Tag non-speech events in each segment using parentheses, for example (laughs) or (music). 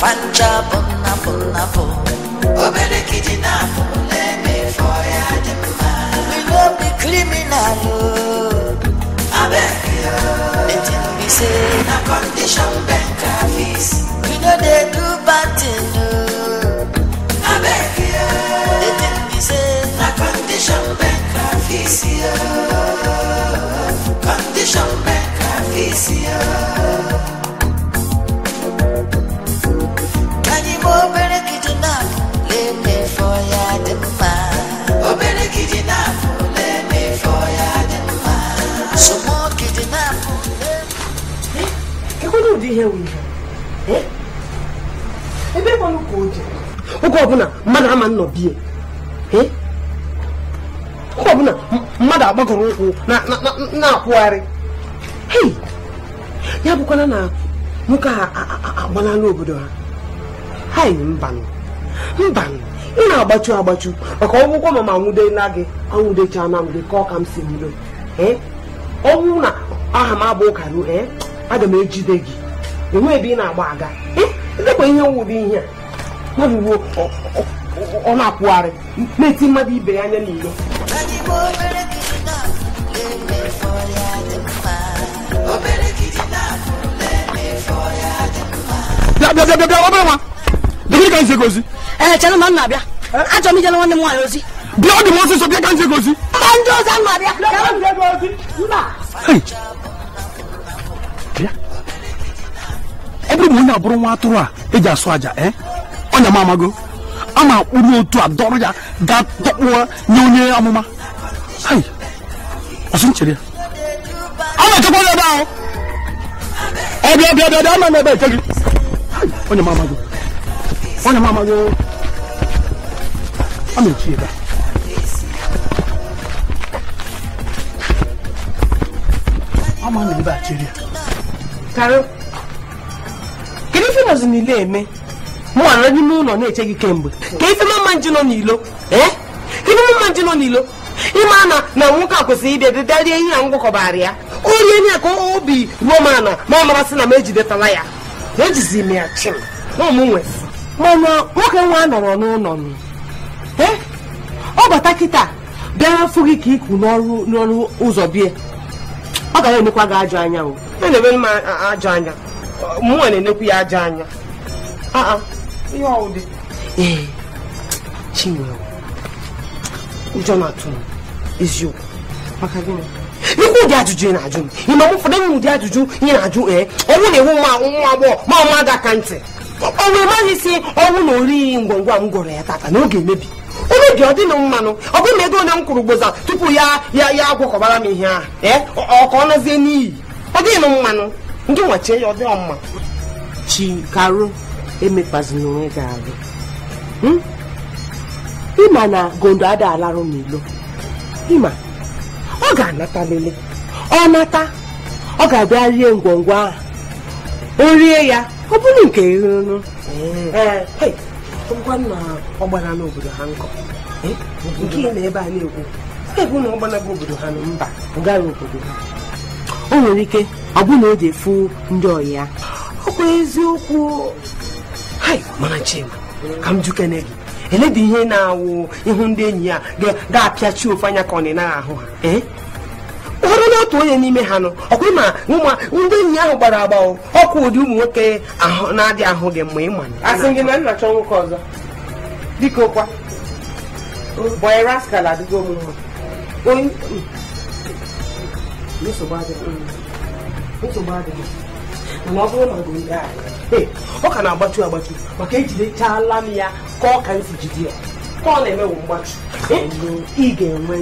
fanja bonna bonna bo obere kidnap let me for ya dem we no be criminal oh abeg yo wetin we say na condition beg office we no dey do bad things oge ọbụla mmadụ ama bie, oge ọbụla mmadụ agbagọrọ ụkwụ na-akwụgharị ya bụkwala na nwoke a agbanala obodo ha hai mbanụ mbanụ ị na-agbachu agbachu maka ọgwụgwọ ma mama nwudela gị anwụdechaa na mgbe ka ọ ka m si bido ọ bụrụ na aha m abụ ụka ruo e, aga m ejide gị enwe ebe ị na-agba aga edekwa ihe nwụrụ ihe a nwebuwo ọ na-akwụgharị na-eti mmadụ ibe ya anya n'ilo ee chere ma m na-abịa achọrọ m ijere nwanne m nwaanyị ozi bia ɔde wɔn soso bia kankyere kosi. kanjo sanma bia. kanjo kosi. bia ɛbili mu onye aburo nwa atụrụ a eji asụ aja ɛ ɔnya ma amago ama akpụrụ otu adọrọ ya ga tọkpụwa nye onye amụma ayi ọsị nchere ya ama echekwa ya ebe ahụ ọbịa bịa bịa bịa ama m ebe eke gị onye m amago onye m amago ama echi ebe a ama na ebe a chere ya karụ kedu ife nọzi n'ile eme mụwa nọ n'ime ụlọ na-eche gị kemgbe ka ife mama nji nọ n'ilo ife mama nji nọ n'ilo ịma na na nwoke a kwesịrị ịbịa dịdarie ihe a ngwakọbara ya o rie nye ka obi ruo m ana ma ọ marasị na m ejidetala ya ejizi m ya chim na m nwezi mana nwoke nwa nọrọ n'ụlọ ọ bata kịta bịa fụ gị ka iku n'ọrụ n'ọrụ ụzọ bie ọ gara enekwa gị ajọ anya o na-enebe m ajọ anya mụnwa na-enekwu ya ajọ anya ihe ee ụjọ na-atụ m eziokwu maka gịnị ụdị ajụjụ ị na-ajụ m ime m ụfọdụ m ụdị ajụjụ ị na-ajụ ee ọnwụ na-ewu nwa agbọghọ ma ọma ga aka ntị ọ wee maghị si ọnwụ na orighi ngwa m gwọrọ ya tata na oge emebi ebe dị ọ dịnụ mmanụ ọ bụrụ na ego onye m kwụrụ gboza tupu ya ya ya agwọkọbara m ihe ahụ ee eh? ọ ka nazie n'iyi ọ dịnụ mmanụ ndị nwachie ya ọ dịọ mma chikaru emekpazina onwe gị arụ hmm? ịma na gondo ada alarụ n'ilo ịma ọ ga-anata lele ọ nata ọ ga-abịa rie ngwongwo ahụ o rie ya ọ bụrụ nke rụrụ ngwa nna ọ gbara n'obodo ha nkọ eh? nke ị na ebe a na-ekwu ebe na ọ gbanago obodo ha na mba gara obodo ha o nwere ike ọ bụ na o fụ ndị ọyị ya ọ eziokwu hai mana chima ka m jukene gị eledị ihe na-awụ ịhụ ndị enyi ya ga-apịachi ofe anya ka ọ na-ahụ ha eh? onye otu onye n'ime ha nọ ọkwa ma nwa ndị enyi ahụ gbara agba ọkụ ụdị ụmụ nwoke na-adị ahụ gị mgbe ịma asị na ọzọ kwa hmm. ọ na-agbatu agbatu maka ejidechala m ya ka ọ ka jide ya ka ọ na-emewu ị ga-enwe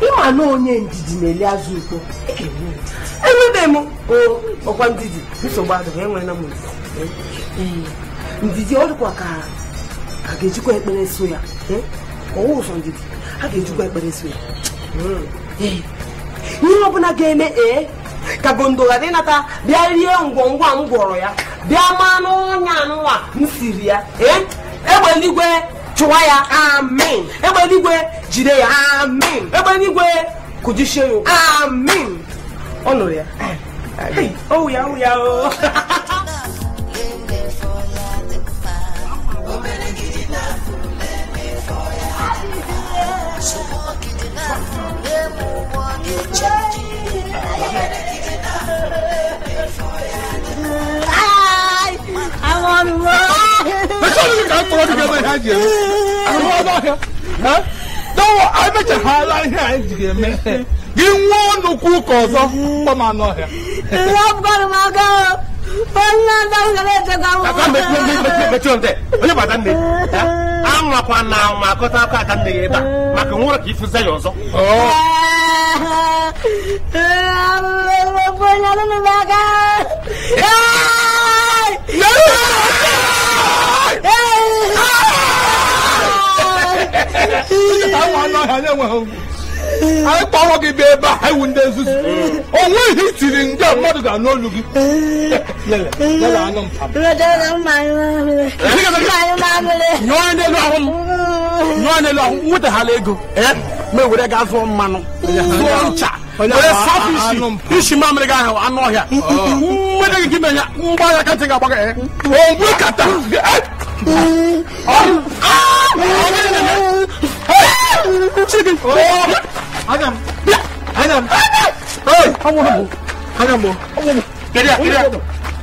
ịma na onye ndidi na-eli azụ ukpo enwebe m ọkwa ndidi nsogbu adịghị enwela m e, ndidi ọ dịkwa ka a ga-ejikwa ekpere so ya e, ọwụ ụzọ ndidi a ga-ejikwa ekpere so ya e, ihe ọbụla ga-eme ee ka gondo ghara ịnata bịa rie ngwongwa m gwọrọ ya bịa maa n'ọnya nwa m siri ya ee egbe eluigwe chụwa ya amin egbe eluigwe jide ya amin egbe eluigwe kujisie ya amin ọ nụrụ ya owu ya owu oh ya o Yeah. Oh oh. (laughs) 我这个没看见，我那个，啊，那我还没吃哈拉呢，还这个没，给我弄苦搞着，我嘛那个，我不搞嘛搞。anwakwa na anwa akọta aka aka nne ya ebe a maka nwụrụ ka ifuze ya ọzọ Yeah! anyị kpọrọ gị bịa ebe a anyị wụ ndị nzuzu o nweghị ndị mmadụ ga-anụ olu gị nyụọ n'elu ahụ nwetaghala ego ma ewere gaa zụọ mmanụ zụọ ncha mamịrị gị ahụ anụ ọhịa gị mgba ya ga ogbu 새끼. 어! 아니야. 아니야. 어이! 한번 한 번. 아니야 뭐. 한번 뭐. 내려 내려.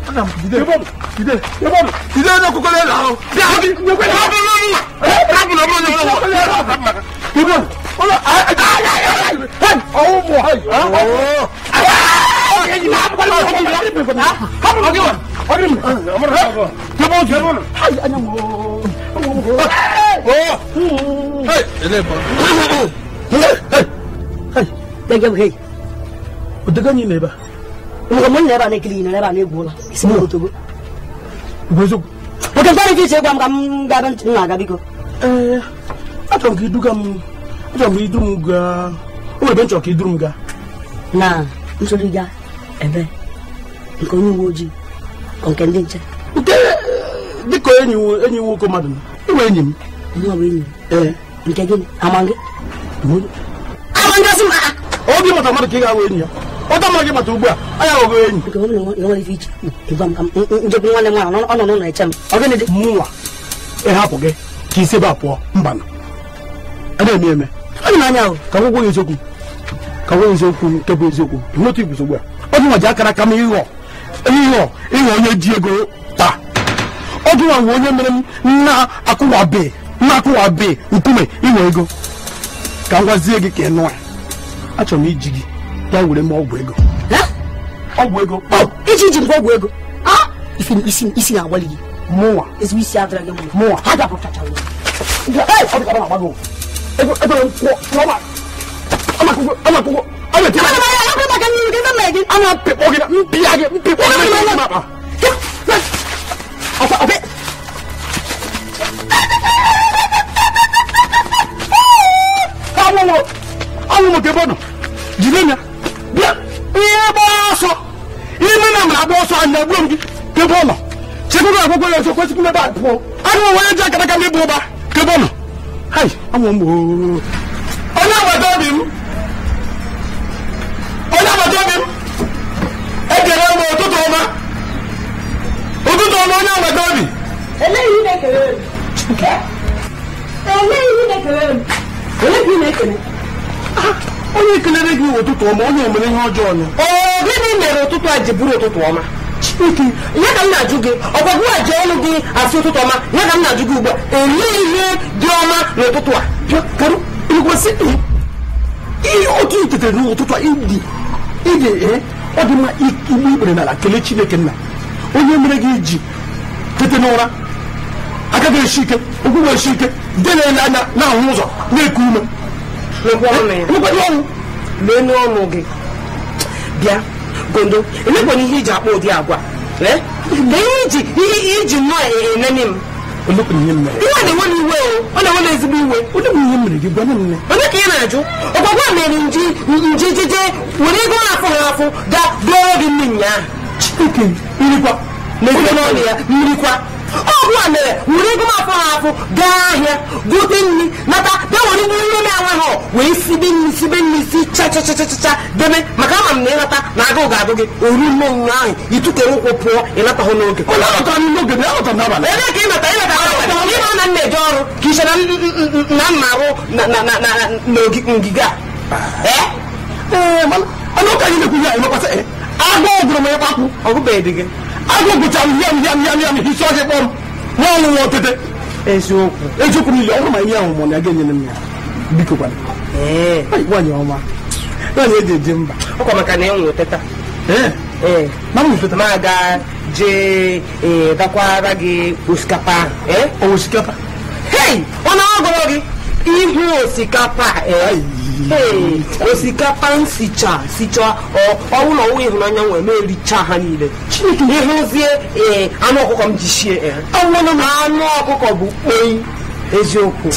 아니야 기대. 대박. 기대. 대박. 기대해놓고 꺼내. 야! 대박. 올라. 아! 아! 아! 어우 뭐 하. 아! 아! 얘기 나 빨리 하기 나. 한번 하기 와. 아니 뭐. 아무나 하고. 대박 대박. 아니 아니야 뭐. 어! ebe a na-egwu ụla oke mkparị ka iche gwa m ka m gaba ntị na aga biko ee achọrọ m ka iduga m ka idu m gaa o nwere ebe m ka iduru m gaa na ebe nke eh, onye uwe ojii nke ndị nke dịka enyi nwoke mmadụ enyi m ọ bụ enyi eh. m mikageli amange mulu amange sim a obi mata mata ke ga weni ya ọtọ mmadụ mata ugbu a anya ọgụ enyi njegbu nwanne m ọ nọ n'ụlọ eche m ọgịnị dị mụnwa ịhapụ gị ka isi ebe a pụọ mba nọ ana eme eme anyị na-anya ahụ ka gwụgwọ ya eziokwu ka gwụgwọ eziokwu nke bụ eziokwu n'otu ibu ugbu a ọ dị nwa ji akara aka m ịghọ ịghọ ịghọ onye ji ego taa ọ dị nwa onye mere m na-akwụwabeghị nakụwabe nkume inwe ego ka m gwazie gị ka ị nụa achọrọ m iji gị bịa were m ọgwụ ego ọgwụ ego iji ji m ọgwụ ego isi na-agbalị gị mụnwa ezigbo isi adịra gị mụnwa ha dapụtachara mpịkpọ gị mpịa gị mpịkpọ gị wo ke bɔnɔ jilenya bia iye bɔ sɔ ime na mra bɔ sɔ ana gulom di ke bɔnɔ sɛgbɛ bɛ akɔkɔ yɛ sɔ kɔsi kun bɛ ba pɔ ali wo wɔyɛ jɛ kɛnɛ kan ne bɔ ba ke bɔnɔ hayi awɔ mo. ɔnye abatɔ bi mu ɔnye abatɔ bi mu ɛdɛrɛ mo otutu ma otutu ma ɔnye abatɔ bi. eléyìí ne kele eléyìí ne kele eléyìí ne kele. onye ekelere gị ụtụtụ ọma onye omere ihe ọjọọ ọnụ gịnị mere ụtụtụ a ji bụrụ ụtụtụ ọma ya ka m na-ajụ gị ọgwagwu a ji ọnụ gị asị ụtụtụ ọma ya ka m na-ajụ gị ugbu a ihe dị ọma n'ụtụtụ a eh, otu itetare n'ụtụtụ a ịdị eh, ọ dị mma igbu ikpere n'ala kelee Chineke nna onye mere gị ji tete n'ụra aka ga-esi ike ụkwụ ga-esi ike na na ụzọ na-eku ume leenụ ọnụ gị bịa gondo emekwana ihe iji akpa ụdị agwa iji iji nnọọ e, e, m na iwe ọ na-enwe na ezigbo iwe onye ka ya na-ajụ ọgwagwa mere nji jije were ego na-afụ ha afụ ga dụọ gị nne nyaa mmiri kwa mmiri kwa ọgwụ a mere were ego m afọ ha afọ gaa ahịa gote nri nata bịa were ihe nri na-enwe ha wee sibe nri sibe nri si chachachachacha debe maka ama m na ịnata na agụ ga-agụ gị oru nne onwe ahụ itukere ụkwụ pụọ ịnata hụ n'oge ebe ka ịnata ịnata ịma na nna eje ọrụ ka iche na mma arụ na ngige a agụ gwụrụ m ịkpakwu ọgụbeghị dị gị agbègbèjà yamyamyamyam ìsọyẹ pọ wọn ń wọ tètè. eziokwu eziokwu ni ilé ma ihe ahụ mọ na aga m ya biko kwana. nwanyị ọma nwanyị eji eji mba. ọ kwa maka na e nwere teta. ma m teta. ma ga jee dakwara gị osikapa. osikapa. hei ọ na-agọrọ gị ihu osikapa. osikapa m sicha sicha ọwụlọ ọwụ ịhụnanya nwere m ericha ha niile ịhụzie ee anụ ọkụkọ m ji sie anụ ọkụkọ bụ Kpoyi. eziokwu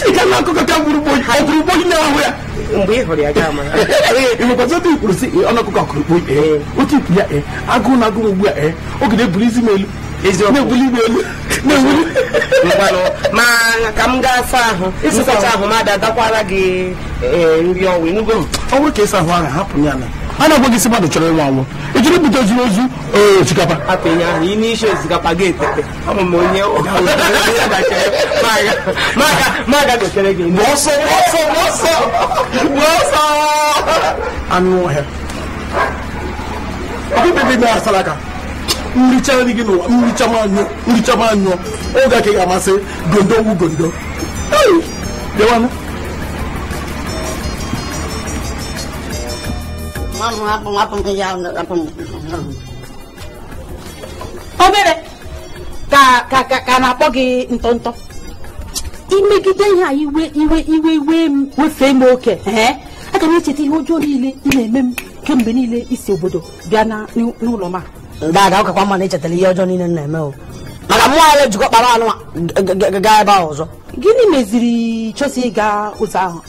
mgbe ị hụrụ ya gaa (laughs) eh, eh, mara ịnwekwazị ebe ikwuru si ọnụ eh, ọkụkọ kụrụ kpoi otu ikwu ya agụụ na agụụ ugbu a oge na-ebuli isi m elu não não ma ka m gaa asa ahụ nsacha ahụ m ada gakwara gị nri ọnwa enugo m ọ bụrụ ka ịsa ahụ ahụ hapụ ya na a na-agwa gị si não chọrọ ịnwa anwụ ịchọrọ ibute ozuru ozu osikapa apịnye ahụ ị n'isi osikapa gị etete ọmụ m onye (laughs) maga gotere gị ọsọ ọsọ ọsọ ọsọ anụ ọhịa ọkụkpebe na asalaka nri chaa nri gị n'ụwa nri chama anyụọ oge aka ga amasị gondo wu gondo dewanụ obere ka na-akpọ gị ntọ ntọ imegide ihe a iwe iwe iwe iwe wefee m oke aga m echeta ihe ọjọọ niile ị na-eme m kemgbe niile isi obodo bịa n'ụlọ m a aga ụkakwa mana echetara ihe ọjọọ niile na-eme o maka mmụọ ara ejikọ kpara anụ gaa ebe ahụ ọzọ gịnị meziri chọsi ịga ụzọ ahụ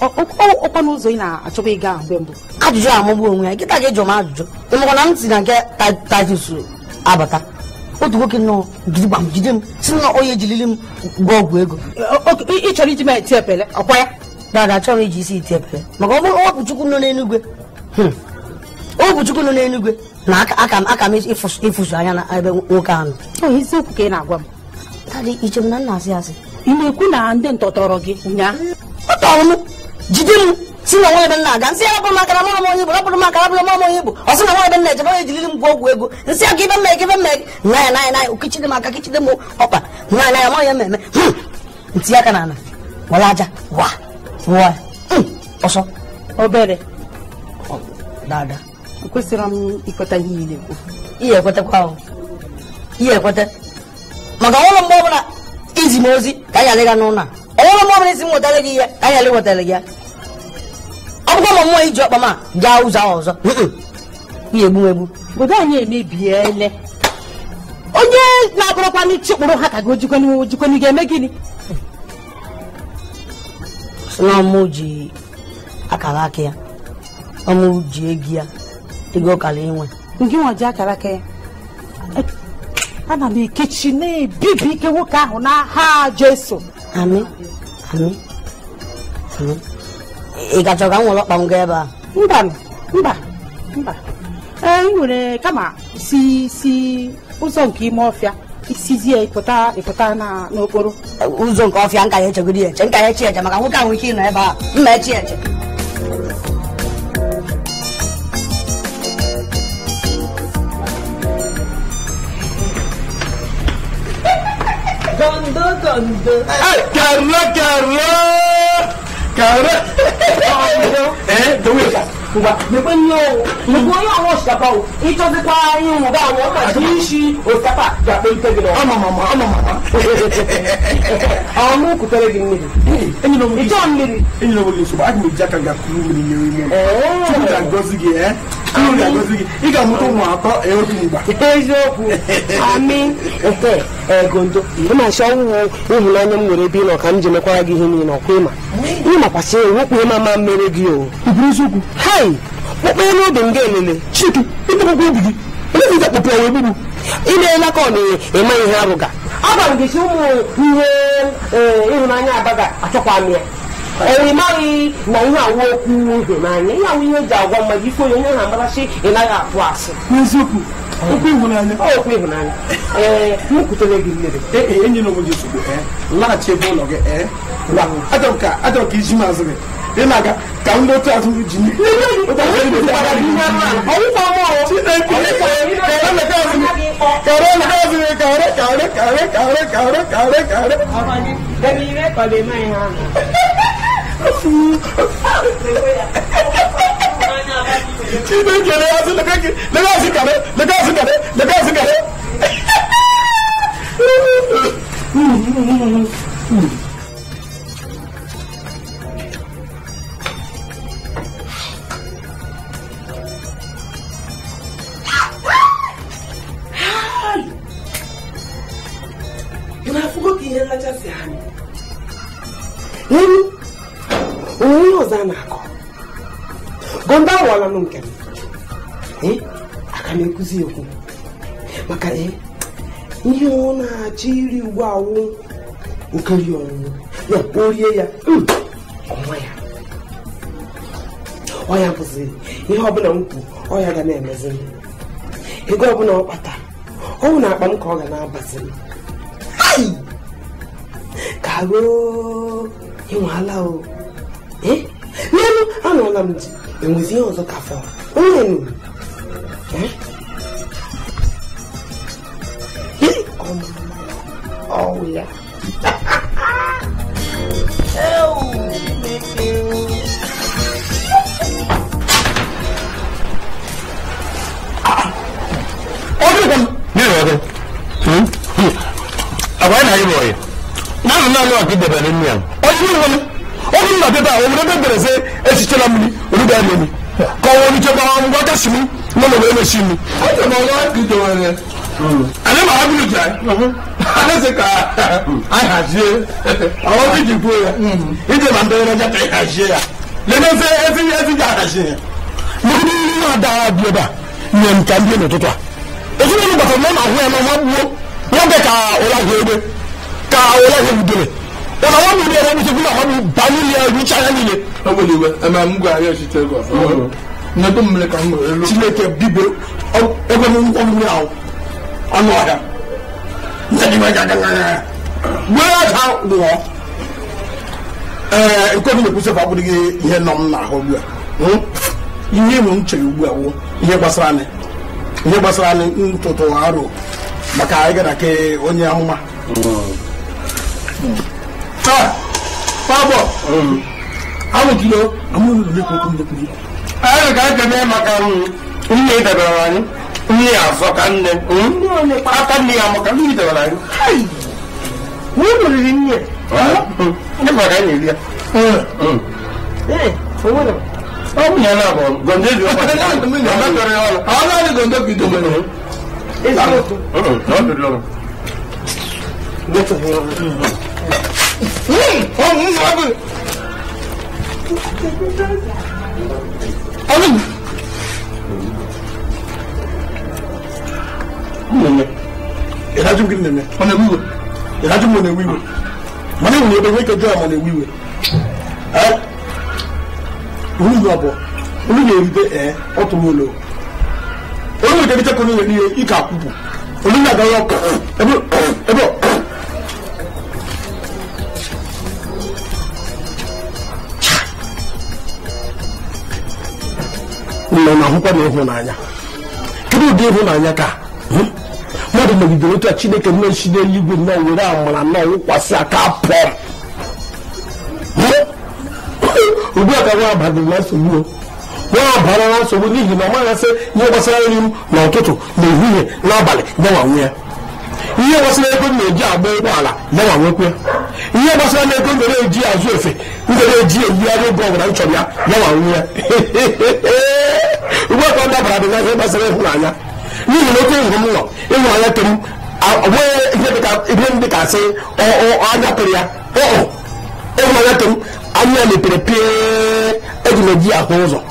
ọkwa n'ụzọ ị na-achọba ịga mgbe mbụ ajụjụ amụgbu onwe ya nkịta gị jụrụ m ajụjụ ịmakwa na m si na nke tatus abata otu nwoke nọ gidigbam jide m si na onye ejiriri m gwa ọgwụ ego ị chọrọ iji m eti epele ọkwa ya dada chọrọ iji isi iti epele maka ọ bụrụ ọpụchukwu nọ n'enugwe hmm. ọpụchukwu nọ n'enugwe na aka m aka m ịfụsụ anya na ebe nwoke ahụ eziokwu ka ị na-agwa m tadị ichem na nna asị asị ị na-ekwu na ndị ntọtọrọ gị ụnyaahụ ọ tọrọ m jide m si na nwa nna m na-aga nsị ya bụrụ maka na mara m onye bụ rapụrụ maka rapụrụ mara m onye bụ ọ sị na nwa ebe m na-eje ya ejiriri m gwụọ ọgwụ ego nsị ya ka ibe mmeghe ibe mmeghe naya na naya okechide m aka kechide m ọkpa naya naya ma ya mmemme ntinye aka na ala wala aja wa wa ọsọ obere dada ekwesịrị m ikweta ihe ị na-ekwu ihe ekwetakwa ahụ ihe ekweta maka ọhụrụ mgbe ọbụla izi m ozi ka anyị alịga n'ụlọ a ọhụrụ mgbe ọbụla isi m nwetara gị ihe ka anyị alị nwetara gị ya ọ bụkwa ma mmụọ iji ọkpa gaa ụzọ ọzọ ihe egbu egbu obodo anyị emebiele onye na-abụrụkwa n'ichi kpụrụ ha ka gị ojikwenu ojikwenu ga-eme gịnị sị na ọmụ ji akara aka ya ọmụ ji egi ya ego ọkara inwe nke nwa ji akara ka ya e, ana m ekechi na-ebibi ike nwoke ahụ n'aha jeso amị amị ị gacha ka m nwere ọkpa m gaa ebe a mba mba mba ee ị nwere kama si si ụzọ nke ime ọfịa isizie ịpụta ịpụta na n'okporo ụzọ nke ọfịa nka ya echegoro ya eche nka ya echi eche maka nwoke ahụ ike ịnọ ebe a mma echi eche kàǹdé. kàrọ kàrọ kàrọ. ẹ dọwọ yóò sà kuba mekpe nyo o mekpe onye awon osikapa o itɔsikpa anyi mu ga awon ka si si osikapa ga pe ite gina ama mama ama mama awon mu kutere gi mmiri itɔ mmiri. enyi na wo le soba a kun bɛ ja ka ga kuru mmiri mmiri mu. tupu ka gɔzi gi ɛ. ị ga-amụta ụmụ atọ otu mgba eziokwu ami nke egondo ịmasị ọnwụ ịhụnanya m nwere ebe ị nọ ka m ji mekwara gị ihe niile ọkwa ịma ịmakwasị wekwu ịma ma mmere gị o eziokwu hai kpọkpere n'obi m ga-elele Chike chiki ịtọkpọkwa obi gị onye ga kpọpụ ya egbugbu ị na-ele ka ọ na-eme ihe abụga agwa m gị si ụmụ ihe ịhụnanya abaga achọkwa amịa. oimari na ihe awokwu uhe n'anya ihe ahụ ihe eji agwa mmadụ ife onye onye na amarachi ị naghị atụ asị n'eziokwu okwu ịhụnanya okwu ịhụnanya ee m kwutere gị mmiri enyi na obodo ozugbo laghachi ebe ụlọ gị ee achọrọ ka achọrọ ka iji mazị gị ị na-aga ka ndị otu azụ ji Thank you. shi ne ke da yasu da kake da yasu kare da yasu kare da yasu kare anụ nke m eh? aka na-ekuzi ekwu maka eh, ihe ọ na-achọ iri uwe awụ okeri ọnwụnwụ ya o rie ya hmm. ọnwa ya ọya bụzi ihe ọbụla m kwu ọya ga na-emezi m ego ọbụla ọ kpata ọnwụ na akpa m ka ọ ga na-abazi m ka ruo ala o eh? n'elu anọla m ji 영지 연서 가서 오늘 예? 어머 어우야 어디 가? 내려와서 응? 아빠는 아니 뭐예요 나는 나는 아끼 대변했냐 어디 가면 어디 가면 나 대다 어디 가면 그래서 애시처럼 bẹ́ẹ̀ lómi kọ́wọ́ ní jẹ́ báwọn ọmọ gẹ́sì mi lọ́nà wẹ́ẹ́ lè sí mi. ó ti mọ wá kí jọ wọn rẹ ale maa bulu jẹ ale se ka a yà se àwọn bí jì fún yà n jẹ ma ka yà se yà lẹnu ẹfẹ ẹfẹ ẹfẹ jẹ yà se yà. mọ̀kúndé yìí yóò da bíyẹn bá yẹn nta bíyẹn ní tuntun a èso nínú bàtà mọ́nà àwọn ẹ̀ma wọn wọ wọn bẹ ka ọlá wọlé bẹ ka ọlá wọlé dèrè ọ̀nà wọn mi yẹn wọn mi sọ fún mi àwọn mi bá mi yẹ ẹ̀rú ìtsayà agbeliwe ama m gwa arịa ọchịchị Lagos nnebe mmiri ka m nwere Chineke bibe ebe m nkwọgburu ahụ ọnụ ọhịa wee aja lụọ ee ekweghị na-ekwusị fa abụrụghị ihe nọ m n'ahụ ugbu a hmm? ihe ịmụ m chere ugbu a wụ ihe gbasara anyị ihe gbasara anyị ntụtụ arụ maka anyị gara ke onye amụma hmm. taa fabọ n'i anyị ga ekene maka nne anyị nne azọ ka nne aka nne ya maka nne debere anyị riri nne ịbara anyị eri ya ọ bụ ya na abụ gonde dị ọ naanị gonde bido mere Mm, oh, Ẹ̀mí. Mmemme. Ìdájú gidi nìyẹn. Ọ na ewiwe. Ìdájú mọ na ewiwe. Mọ̀nà ìwé ebe wíkẹ̀ jọ àmọ̀ na ewiwe. Ẹ olú yóò bọ̀ olú yóò rí bẹ́ ẹ ọ̀tún wọn lọ. Olú yóò débi tẹ́kọ̀ọ́ ní ìkà àkùkù. Olú yóò àgbáyọ̀ ẹ̀bọ̀ ẹ̀bọ̀. na na ahụkwa na ịhụnanya kedu ụdị ịhụnanya ka hmm? mmadụ megidere otu a chineke nnechi n'eluigwe nwere were amara nnọọ wụkwasị aka pụọ ugbu hmm? a ka nwa abadị na nsogbu nwa abara na nsogbu n'ihi na ọ maghasị ihe gbasara nri m na n'ehihie n'abalị gbanwanwe ihe gbasara ego m na-eji agba ụgbọala gbanwanwekwe ihe gbasara na ego mere eji azụ efe na eji eyigharị oge ọbụla m chọrọ ya gbanwanwe ya (laughs) ugbu a ka ọ dabara dị n'afọ gbasara ịhụnanya n'ihi na oke nhụ m nọ ịhụnanya ke m onweghị ihe dị ka asị anya pịrị ya ịhụnanya ke m anya mepere pie eji ahụ ụzọ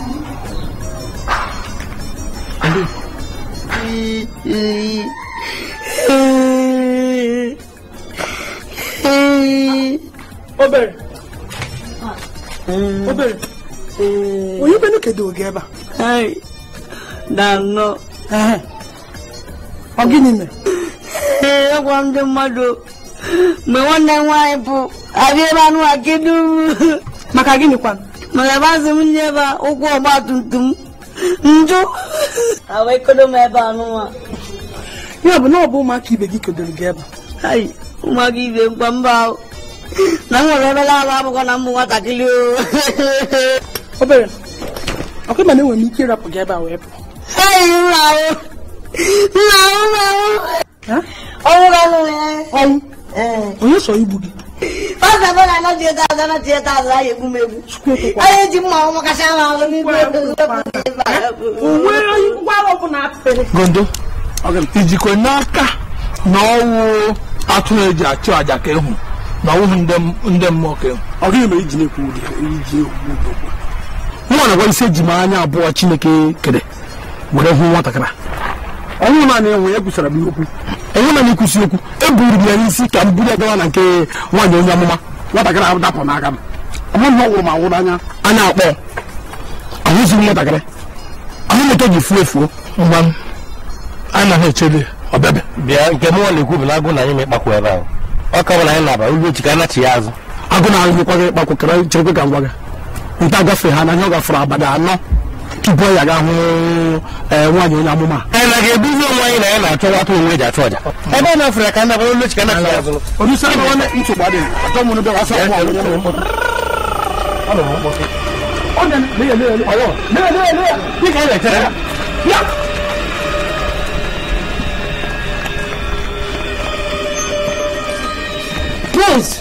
obere obere onye be kedu oge ebe a na anọ ọ gịnị mere ee agwa ndị mmadụ mgbe nwanne m nwaanyị bụ abịa ebe anụ a kedu maka gịnị kwa maka ebe azụ m nye ebe ụkwụ ọgba tum tum njụ awekodo m ebe anụnwa ya bụ na ọ bụ ụmụaka ibe gị kedoro gị ebe ụmụaka ibe mkpa mba na m nwere ebe laala abụkwa na mbụ nwatakịrị o (laughs) obere ọkụ mana enwere m ike ịrapụ gị ebe a wee pụọ onye so igbu gị gondo ijikwa n'aka na ọwụ atụrụ eji achụ aja ka ịhụ na ọwụghị ndị mmụọ ka ịhụ ọ ma iji na-ekwu ụdị iji ụdị nwa na-agwa isi eji m anya abụọ chineke kere were hụ nwatakịrị ọnwụ naanị enwe ya kwusara m okwu enwe naanị ikwusi okwu eburu ya n'isi ka m buru ya gawa na nke nwaanyị onye amụma nwatakịrị ahụ dapụ n'aka m ọmụ na ọ m awụrụ anya anya akpọ ahụzighị nwatakịrị ahụ moto ji fuo efuo mgba m anaghị echebe ọbịabịa bịa nke m nwa na-ekwu bụ na agụ na anyị ma ịkpakwu ebe ahụ ọ ka bụ na anyị na-aba ugbo chi ka anachi ya azụ agụ na ahụ nyekwa gị ịkpakwu kere cherekwe ka m gwa gị nta gafe ha na ihe ọ gafere abalị anọ tupu ọ ya ga hụ e, nwaanyị onye amụma anyị na ga-ebuzi onwe anyị na ya na-achọ nwata onwe ji achụ ọja ebe ọ na-afere ka ndaba olu chika na-afere azụ odusa na ọ na-echekwa dị atọ mụ n'ebe asa ọgwụ ọgwụ ọgwụ ọgwụ Prince,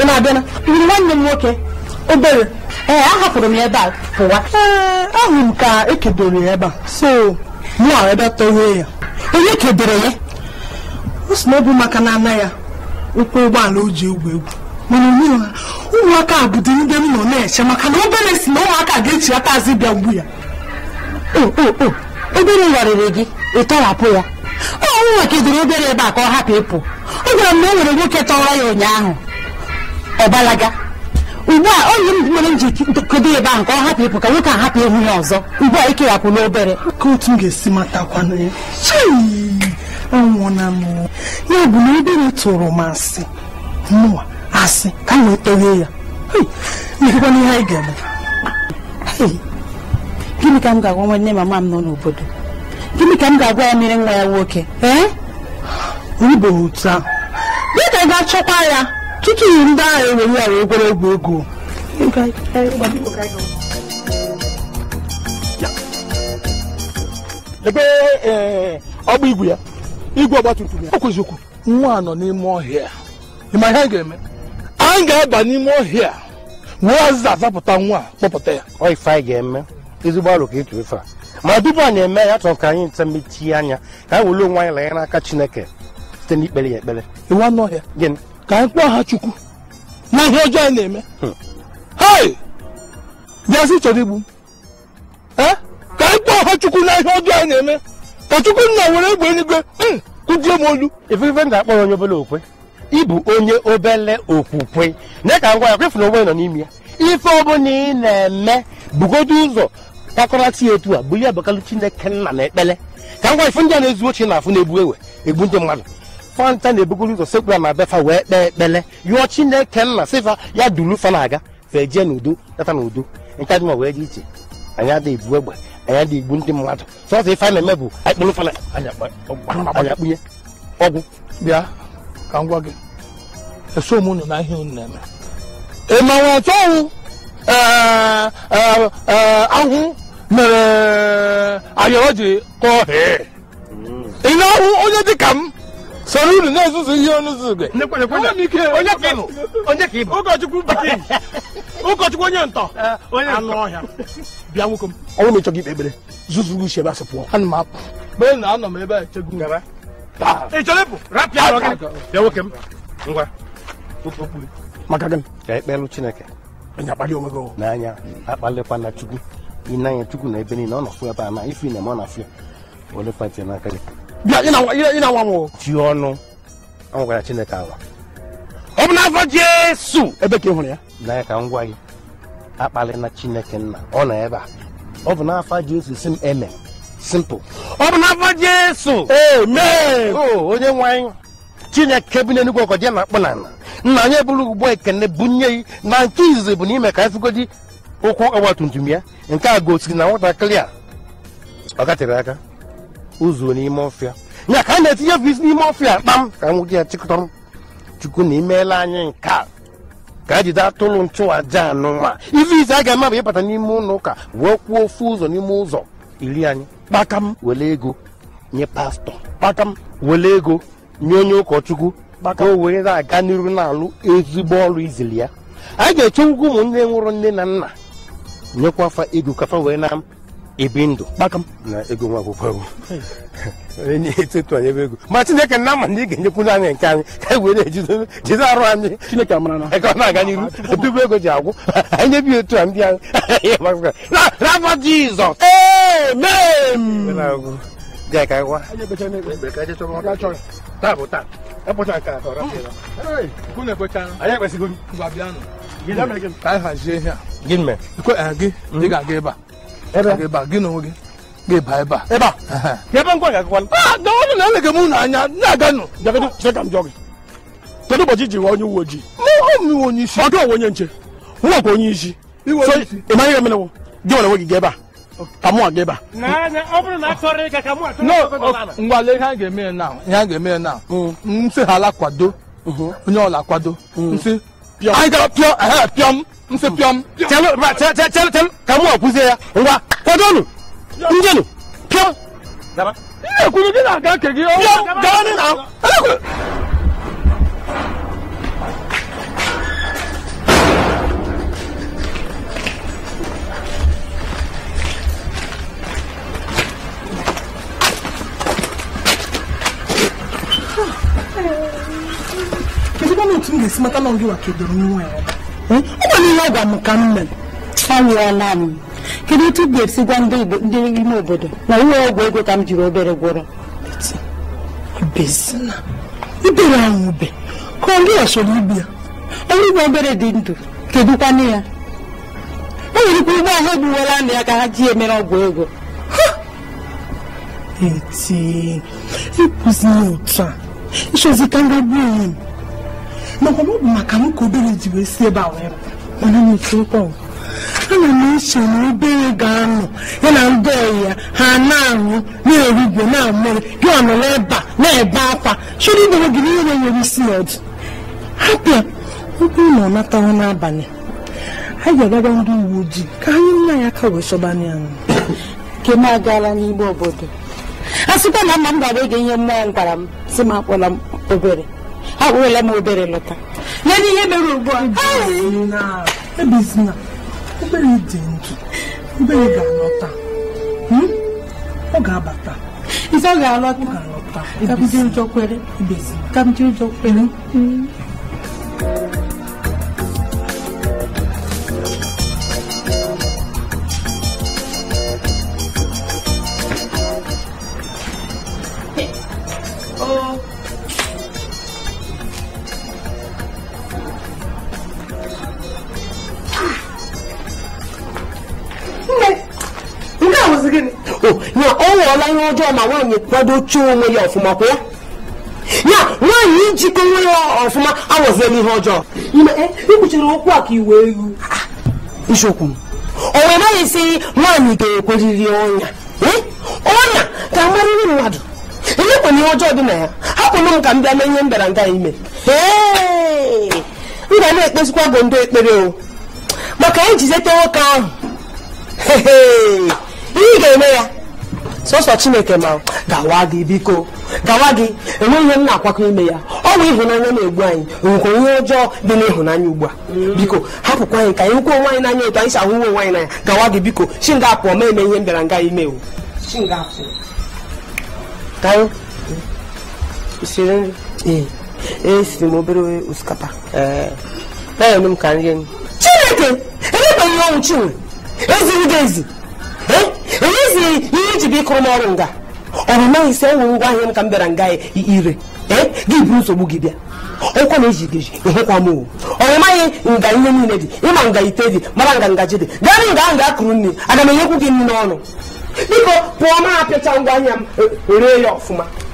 ị na-abịa na nwanne m nwoke obere ee eh, ahapụrụ m ya ebe a pụwa ee eh, ahụ m ka ekedoro ya ebe a so mụa ebe tọghee ya onye kedoro ya o si na ọ bụ maka na ana ya ụkwụ ụgbọala o ji egwu egwu mana onye ha ụmụaka a bụdo ndị m nọ na-eche maka na obere si na ụmụaka ga-echi aka azụ bịa mgbu ya obere warịrị gị ịtọhapụ ya ọ nwa kedoro obere ebe a ka ọ hapụ ịpụ ọ gwara m na o nwere nwoke tọwa ya ụnyaahụ ọ balaga ugbu a onye m nwere m ji ntụkọdo ebe ahụ ka ọ hapụ ịpụ ka nwoke a hapụ ịhụ ya ọzọ ugbu a ikewapụ n'obere ka otu m ga-esi matakwanụ ya anwụọna m ya bụ na obere tụrụ m asị mụwa asị ka m wetohe ya mekwana ihe anyị ga-eme gịnị ka m ga-agwa nwanne mama m nọ n'obodo gịnị ka m ga-agwa ya mere nwa ya nwoke ee otu ahụ dịka ga-achọkwa ya tutu ndị ahụ enwere ya ekwere egwu ego ebe eh, ọgba igwe ya igwe ọgba ya o nwa nọ n'ime ọhịa ịma ihe a ga-eme anyị ga-aba n'ime ọhịa wee azịza azapụta nwa kpọpụta ya ọ ife anyị ga-eme ezigbo alụ ka etu ife a ma tupu anyị eme ya chọrọ ka anyị nta mechie anya ka anyị were onwe anyị lanye n'aka chineke site n'ikpere ya ekpere iwu anụ ọhịa gịnị ka anyị kpọọ ha chukwu na ihe ọjọọ anyị na-eme hai bịazi chọrọ igbu m ka anyị kpọọ ha chukwu na ihe ọjọọ anyị na-eme ka chukwu nna were egbe eluigwe hmm, kụjie m olu ifeife m ga-akpọrọ onye obele okwe ịbụ onye obele okwukwe na ka ngwa ya kwefuna onwe nọ n'ime ya ife ọbụla ị na-eme bugodo ụzọ takọrata ya etu a bụ ya abụkalụ chineke nna na ekpele ka ngwa ife ndị a na-ezu ochie na afụ na-ebu ewe egbu ndị mmadụ fanta na-ebugoro ụzọ sekpura ma befa wee kpee ekpele yụọ chineke nna sifa ya dulu fa na-aga fejie n'udo leta n'udo nke dị ma wee dị iche anyị adịghị ebu egbe anyị adịghị igbu ndị mmadụ sọsọ ife anyị na-eme bụ anyị kpụrụ fana anyị akpụnye ọgwụ bịa ka m gwa gị eso m unu na ihe unu na-eme ị mawa ọtọ ọwụ ahụ mere ayọrọ ji kọọ ị na-ahụ onye dị ka m soro unu na-ezuzu ihe ọnụ zugbe ụkọchukwu bakin ụkọchukwu onye ntọ anụ ọhịa bịa nwoke m ọnwụ na ịchọghị ikpe ekpere zuzu gị ushebe asị pụọ ana m apụ na anọ m ebe a echegbu ị chọrọ ịpụ rapịa arọ gị bịa nwoke m ngwa maka ka ekpelụ chineke anya akpali onwe gị n'anya chukwu ị na chukwu na ebe niile ọ nọ fụ ebe a na na ọ na ya n'aka gị nwa ji ọnụ anwụgara chineke anwa ọ bụ n'afọ jesu ebe ka ị hụrụ ya n'anya ka m gwa gị na chineke nna ọ nọ ebe a ọ bụ n'afọ jesu si m eme simple ọ bụ n'afọ jesu amen onye nwe anyị chineke bụ n'enugwu ọkọ je na-akpụ na ala nna anyị eburu ugbo ekene bunye ya na nke izizi bụ n'ime ka efugodi ụkwụ ọgba tum tum ya nke a gosiri na nwatakịrị a ọ gatere aka ụzọ n'ime ọfịa nya ka a na-etinye bụ n'ime ọfịa kpam ka nwoke ya chịkọtọrọ chukwu na imeela anyị nke a ka a jide atụrụ nchụaja anụnwa ife ise a ga-eme bụ ịbata n'ime ụlọ ụka wee kwuo ofu ụzọ n'ime ụzọ iri anyị kpakam were ego nye pastọ kpakam were ego nye onye ụkọchukwu ka o were aga n'iru na-alụ ezigbo ọrụ izili ya a ga-echewukwa ụmụnne nwụrụ nne na nna nyekwa afa ego kafa wee na ebi ndụ kpakam na ego nwa akwụkwọ onye na-etetu anyị ebe ego ma chineke na ama na ị ga-enyekwuru anyị nke anyị ka e were jide arụ anyị chineke amara na ka ọ na-aga n'iru obibu ah, ego ji agwụ anyị (laughs) nyebi otu a ndị anyị (laughs) n'afọ jizọs amen dị e gị eh, hmm? ga-aga ebe a kedu ụbọchị ji ghọọ onye uwe ojii ọ dụ onwe onye nche nwakwa onye isi ị maghị gị nwere onwe gị ebe a ka mụ aga ebe a ngwale ihe a ga-eme na ihe a ga-eme na mm. nsị ha ala kwado mm-hmm. onye ọla kwado mm. nsị nse piọm chẹlu ma chẹ chẹ chẹlu chẹlu ka mu ọkụ se ya ngwa kwado nu nje nu piọm. ihe kwuru gị na-aga nke gị. piọm gaa nị na. Kedu mmanụ otu m ga-esi mata na ọ gị wakidoro nwa ya? ọ nwere ihe ọ m ka m mere ọ nwụọla m kedu otu ga-esi gwa ndị ime obodo na ụlọ ọgwụ ego ka m jiri obere gwọrọ ibere ahụ ube ka ọ gị ọsọrọ ibi ya ọrụ igwe obere dị ndụ kedukwanụ ya o nwere ike ụgbọ ahụ egbuwela na ya ka ha ji emere ọgwụ ego eti ịkụzi ya otu a ịchọzi ka m gagbuo onwe m makwa ọ bụ maka m ka obere ji esi ebe a wee mana m echekwọ ana m eche na obere ga-anọ ya na ndị ọyị ya ha na-aṅụ na-erugwe na-amụrụ gị ọ nọrọ ebe na-ebe akwa chọrọ idere gị n'ihe na-enyere isi na ọdụ hapịa ọ bụrụ na ọ natawa n'abalị ha ga-agara ndị uwe ojii ka anyị nna ya aka wee chọbana ya nke m agaala n'igbe obodo a sịkwa na mma m gara ege ihe mmụọ m gwara m si m akpọla m obere awụrụla m obere lọta ledị ihe mere ugbu a ebezina obere dị ndụ obere ga-alọta ọ ga-abata isi ọ ga-alọta ka m jiri ụjọ kwere ka m jiri ụjọ kwere ọla ihe ọjọọ ma nwaanyị kwado chọọ onwe ya ọfụma kwa ya ya nwaanyị ijikọ onwe ya ọfụma awọziela ihe ọjọọ ikpuchiri okwu a ka iwe elu isiokwu m naghị esi nwaanyị ga-ekweriri ọnya ọnya ka amarịrị mmadụ elekwana ihe ọjọọ dị na ya hapụrụ m ka m bịa mee ihe nga ime m ga na-ekpezikwa bụ ndị ekpere o maka ijizete nwoke ahụ ihe ị ga-eme ya sọsọ chineke ma gawa gị biko gawa gị enweghị ihe m na-akwakọ ime ya ọ bụ ịhụnanya na-egbu anyị nwekwa ihe ọjọọ dị n'ịhụnanya ugbu a biko hapụkwa anyị ka anyị kwuo onwe anyị n'anya etu anyị si ahụ uwe nwaanyị anyị n'anya gawa gị biko chi nga ma eme ihe m bịara nga ime o esiri e, m obere osikapa chineke elebeghị ọnwụ chinwe eziri gị ezi enyezighị ihe iji bụ ịkụrụ m ọrụ nga ọ bụ maghị isi enwe ngwa ahịa m ka m bịara nga ire ee gị buru nsogbu gị bịa ọkwa na eji geji ịhụkwa m owu ọ maghị nga ihe niile dị ịma nga ite dị mara nga ngaji dị gaa nga ahụ ga-akụrụ nri aga m enyekwu gị nri n'ọnụ biko pụọ ma apịcha ngwa ahịa m e- e ree ya ọfụma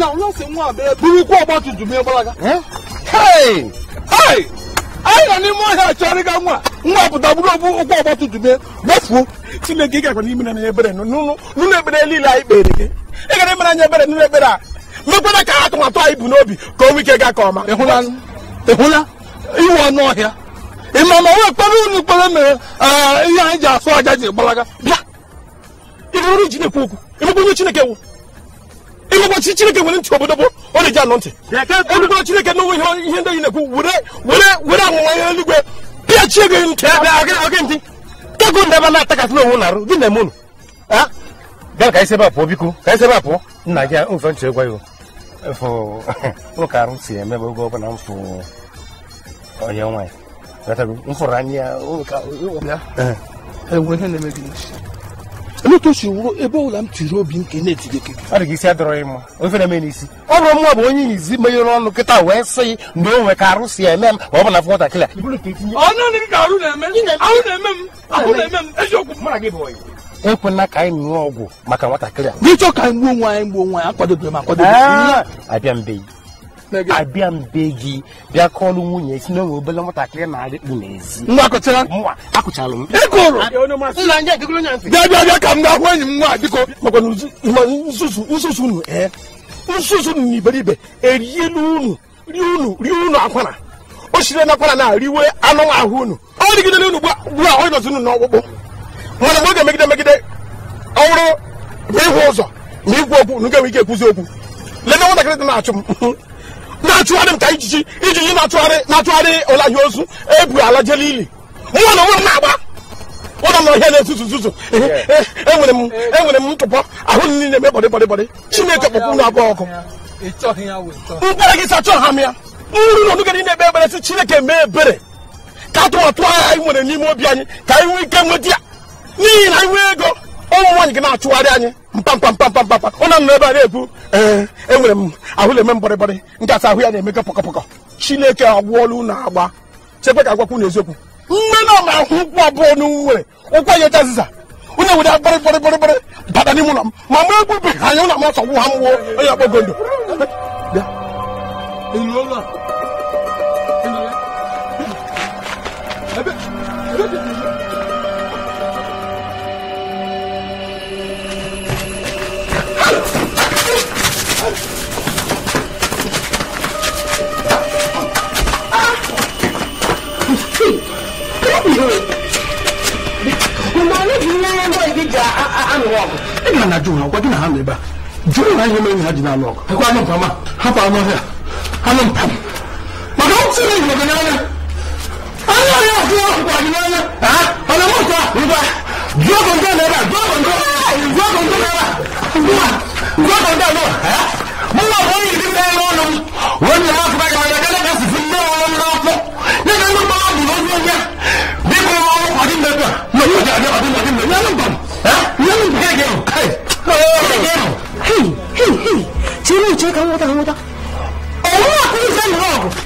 na nwa nwa burukwa ọgba gbalaga anyị nọ n'ime ọhịa chọrịga nwa nwa pụta bụrụ obu ụkwụ ọgba tum tum ya gbafuo chineke gakwa n'ime na ebere n'ụlọ ebere niile anyị kpere gị ị gara mere anyị ebere n'ụlọ ebere a mekwana ka atụmatụ anyị bụ n'obi ka onwe ike gaa ka ọma ịhụla iwe ọnụ ọhịa ịma ma wee kpere unu kpere mere ihe anyị ji asụ aja ji gbalaga na ịgwụgwachi chineke nwere ntị obodo bụ ọrịa na anọ ntị elugbere chineke na onwe ihe ndị na-ekwu were amụma ihe eluigwe pịachie gị ntị ntị tego ndị ebe na-atakasị na-arụ gị na-eme unu bịa ka anyị biko ka arụ si oge ọbụla m fụ onye na gị si wuru ebe ọbụla m tiri obi m ke na-etide ke ọ dịghị isi adịrọghị mma ofe na-eme n'isi ọ bụrụ mma bụ onye izi menyere ọnụ kịta wee sị na o nwe ka arụ si eme m ma ọ bụ na nwatakịrị ekwena ka anyị ṅụọ ọgwụ maka nwatakịrị a n'ịchọ ka anyị gbuo nwe anyị gbuo nwe anyị akwadobe m akwadobe abịa mbeyi abịa mbe gị bịa kọọlụ nwunye si na onwe obele bịa ka m ahụ enyi nwa biko nsusu unu ee nsusu unu na erielu unu rie unu rie unu akwara o sire na akwara na riwe anụ ahụ unu ọ dịgidere unu gbu ahụ ịnọzi unu n'ọkpụkpụ mana megide ịhụ ụzọ ma okwu ga-enwe ike ekwuzi okwu nwatakịrị dị na-achụ m na-achụgharị m ka ijiji ijiji na-achụgharị na atụgharị ụla ozu ebu ala jele ili nwa na nwa m na-agba e ụlọ na ọhịa na-ezuzu zuzu enwere m enwere m ntụpọ ahụ niile eme bọdị bọdị bọdị chineke kpọkwu na agba ọkụ mkpere gị sachọ ha m ya nruru na onugere na-ekpe ebere sị chineke mee ebere ka atụmatụ agha anyị nwere n'ime obi anyị ka anyị nwee ike nweta ya n'ihi na anyị nwee ego ụmụ nwaanyị gị na-achụgharị anyị mkpamkpamkpamkpamkpam na nọ ebe a na ee enwere m ahụ na-eme mgbọrịgbọrị nke asa ahụ ya na-emekọ pọkọpọkọ chineke agwụọla unu agba chekwe ka agwakwụ n'eziokwu mgbe na ma ahụ ụkwụ abụọ n'unwere ụkwụ ya jazịza onye were gbọrịgbọrịgbọrịgbọrị bata n'ime ụlọ m ma mgbe egbubeghị anya ụlọ m ọsọ gwụ ha mwụọ onye ọkpọ Ebe, ebe, ebe. ɛna anadwo ha wɔde na ha meba dwere na nyɛma nyina gyina ano ɔkɔ ɛkɔ ano mpama hapa ano hɛ ano mpam maka wote ne nyina gyina ano ano yɛ ɔkɔ ɔkɔ gyina ano ɔna mo kɔ nipa dua kɔntɔ na ɛba dua kɔntɔ dua kɔntɔ na ɛba dua dua kɔntɔ na ɛba mo ma wɔn yi ti fɛn wɔn nom wɔn nyinaa fura yɛ 没有假的，我就没有那么啊！没有骗你，嘿，嘿，嘿，嘿嘿嘿，走路，走路，我走，我走，我走，我走。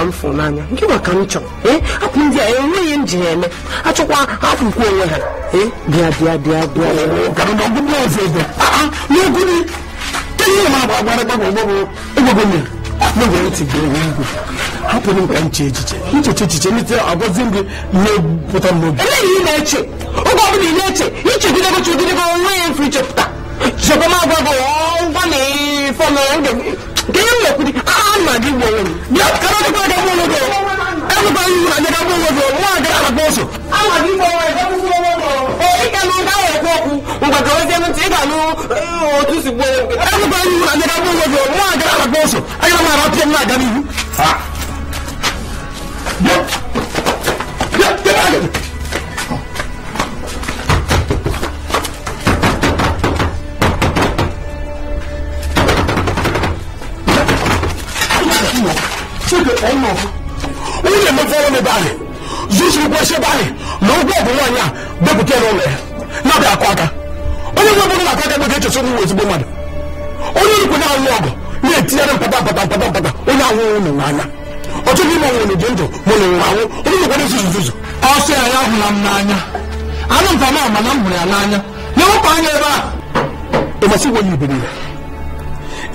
ka m fụrụ n'anya nke nwa ka m chọrọ ee ndị a enweghị m ji ha eme achọkwa afụkwa onwe ha ee eh? bịa bịa bịa bịa ah, ah, hapụrụ m ka m chee echiche ncheche echiche nite agwazi gị na eleghị ị na-eche oge ọbụla ị na-eche onwe ya mfe ichepụta gị na nke an ma di wowo ni kana di ko da wowo do an ba yi na da wowo do wa da ala boso an ma di wowo da wowo do o i ka no da wo ko ku ngba ka wo se mun ti ba no o tu si wowo an ba yi na da wowo do wa da ala boso ayi ma ra ti na da mi ha yo igwe kpọọ m zuzu ebe na ụgwọ ọgwụ nwaanyị a bepụta ya n'ụlọ ya na-abịa akụ aka onye nwe bụrụ na-akụ aka bụ ga-echesa nwa ezigbo mmadụ onye nkwe na-alụ ọgụ na-etinyere mpata mpata mpata mpata onye anwụghị ụmụ n'anya ọtụtụ ime ọnwụ na ndụ mụ na ụmụ anwụ onye nkwe na-ezuzu zuzu ọsọ ya ya hụla m n'anya anụ mpama ama na m hụrụ ya n'anya na wepụ anya ebe a ịmasị wenye iberibe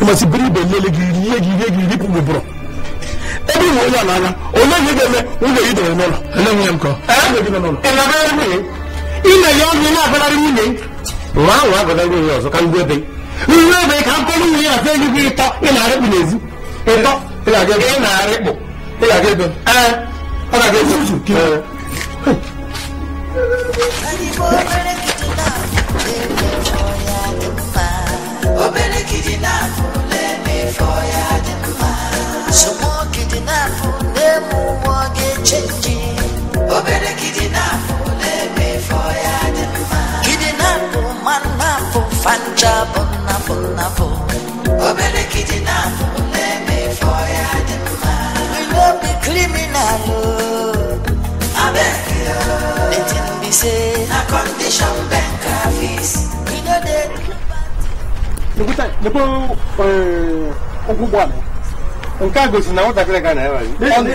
ịmasị biri ibe lele gị rie gị rie gị ripụ gị bụrụ ebi mu onye n'anya onye gị ga-eme nwunye gị dere n'ụlọ ele nwunye m kọ ịnabara nwunye ime ya ọnụ na-abalari nwunye nwa ahụ agọdara nwunye ọzọ ka ngwa ebe nwa ebe ka mkpụrụ nwunye ya fee gị ịtọ ị na-arịkpụ n'ezi ịtọ ị na-arịkpụ ị ga-aga ebe ee ọ ga-aga ebe uzu obere kidi na-afụ lele fọ ya dị n'afọ na-eme ụwa ga-echenji obere gidi n'afọ na-eme ifo ya dị mma gidi n'afọ ma n'afọ fancha bụ n'afọ n'afọ obere gidi n'afọ na-eme ifo ya dị mma we no be criminal abeg yo the thing be say na condition bank office we no dey. Nekuta, nebo, eh, ogugbo ame. nke a gosiri na nwatakịrị ga na-ewere chọọ ọbụla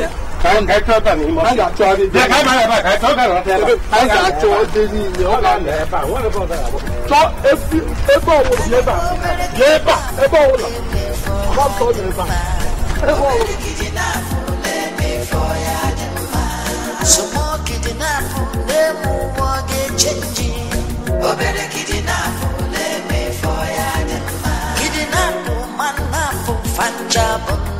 a man,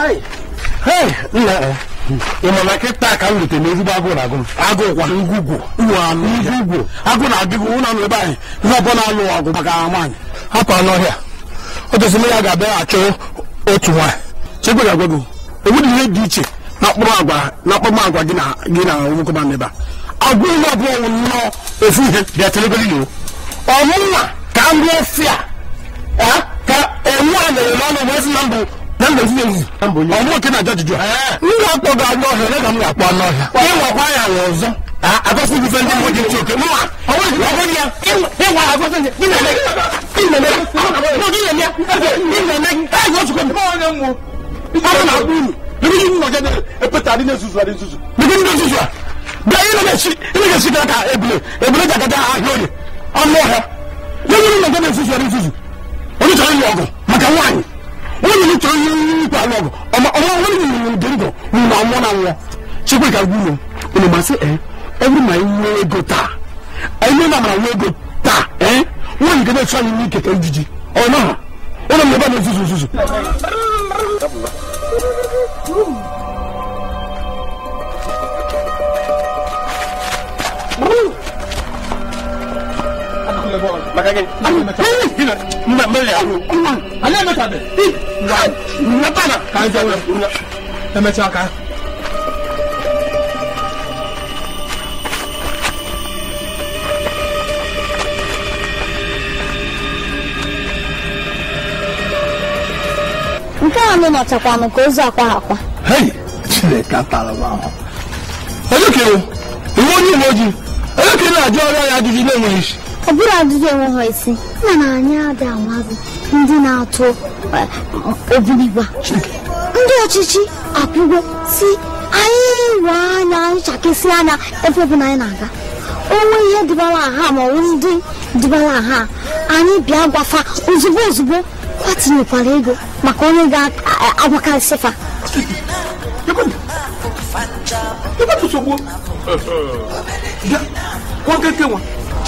Eh, ị ma na kịta ka m rute n'ezigbo agụụ na-agụ m agụụkwa ngwugwu ngwugwu agụụ na-adịghị ebe anyị ihe ọbụla na-alụ ọgụ maka nwaanyị hapụ n'ọhịa ọ ya ga-abịa achọ otu nwaanyị chekwa ga ihe dị iche na mkpụrụ agwa na agwa gị na n'ebe a agụ ihe ọbụla nnọọ ofu ihe bịa telegoro iwu ka eh, ka enwe a n'ọnụ namba fi ewu ọmọ kí na jọjọ jọ n yà kpọ gà ọgbọ ọhìà ne kà m yà kpọ ọnà ọhìà ẹ wà kwa yà wọ ọzọ àkọsí ibi fẹ ndé mo di ti òkè mu wa ọwọ ìdí ọwọ ìdí ẹ wà àkọsí ndé ní nàlẹ ní nàlẹ ní ọdún nàlẹ ní nàlẹ ẹ yọ sùkọ mi. ọwọ náà mú ọwọ náà mú mi ebi yìí mú ọjọ náà ẹ pẹtẹ adé náà susu adé susu. bíbí ní susu a bẹẹ yìí lọ́dọ̀ si ilé yẹn si kàkà ebile ebile jàkàtà àhìọ́ ni ọmọ ọ̀hẹ́ yẹ́n yìí mú ọjọ náà susu adé susu onítọ̀ọ́ yìí ọgọ̀ màkà wáyé wọn nínú tó yín pa lọgọ ọmọ ọmọ wọn nínú nínú dèrè gọ nínú àwọn náà wọ ṣé pé ká gún ọ ọmọ màá sẹ ẹ every my way go ta ẹ ní ọmọ my way go ta ẹ wọn nìkan bẹ sọ ní kẹkẹ jìjì ọ náà wọn nà mí bá mi sùsùsùsù. maka gị anyị ka nke a nụ nọchakwanụ ka ozu akwa akwa ahụ onye kere onye uwe ojii onye kere na-ajụ ọrụ ya adịghị na-enweghị isi ọ bụrụ adịghị enwe ha isi na anyị adị amazị ndị na-atụ e, obiligwa ndị ọchịchị akwụgo si anyị we anya anyị anya ebe na anyị na-aga onwe ihe dịbara aha ma ọ ndị dịbara aha anyị bịa gwafa ozugbo ozugbo kwatinyekwara ego maka onye ga-agwakarịsịfa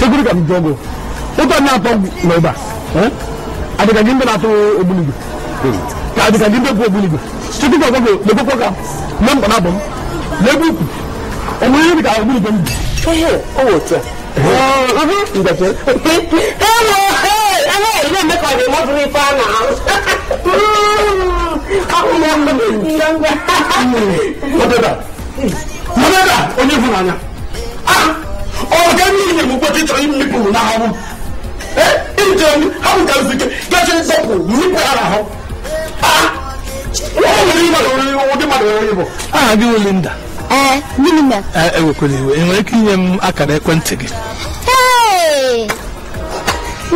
security kam jogo oto na to loba eh ade ka gimbe na to obuligo ka ade ka gimbe ko obuligo security ko ko le ko ka nam ko na bom le bu o mo ni ka obuligo mi eh o wo tia oh uh huh ngate hello hey ana ile me ka de mo fri fa na ahụ ya ngwa ngwa ngwa ngwa ngwa ngwa ngwa ngwa ngwa ịchọrọ imikpu na ahụ ịchọrọ ha bụ gazi ike gachi nsọpụ ha na ahụ ụdị mmadụ nwere aha gị Linda ewekwala iwe enwere ike inye m akara ekwentị gị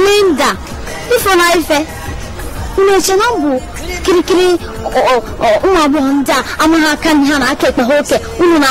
Linda ụmụ agbọghọ ndị a amaghị aka ha na aka ekpe ha oke na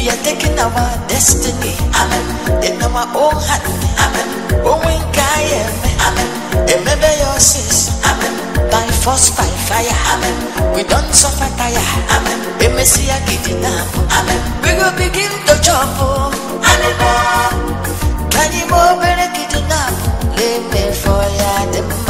We are taking our destiny. Amen. In our own hand. Amen. Oh, we can. Amen. Remember your sins. Amen. By force, by fire. Amen. We don't suffer tire. Amen. We may see a kitty now. Amen. We will begin to jump. Oh. Amen. Can you move in a kitty now? Leave me for ya.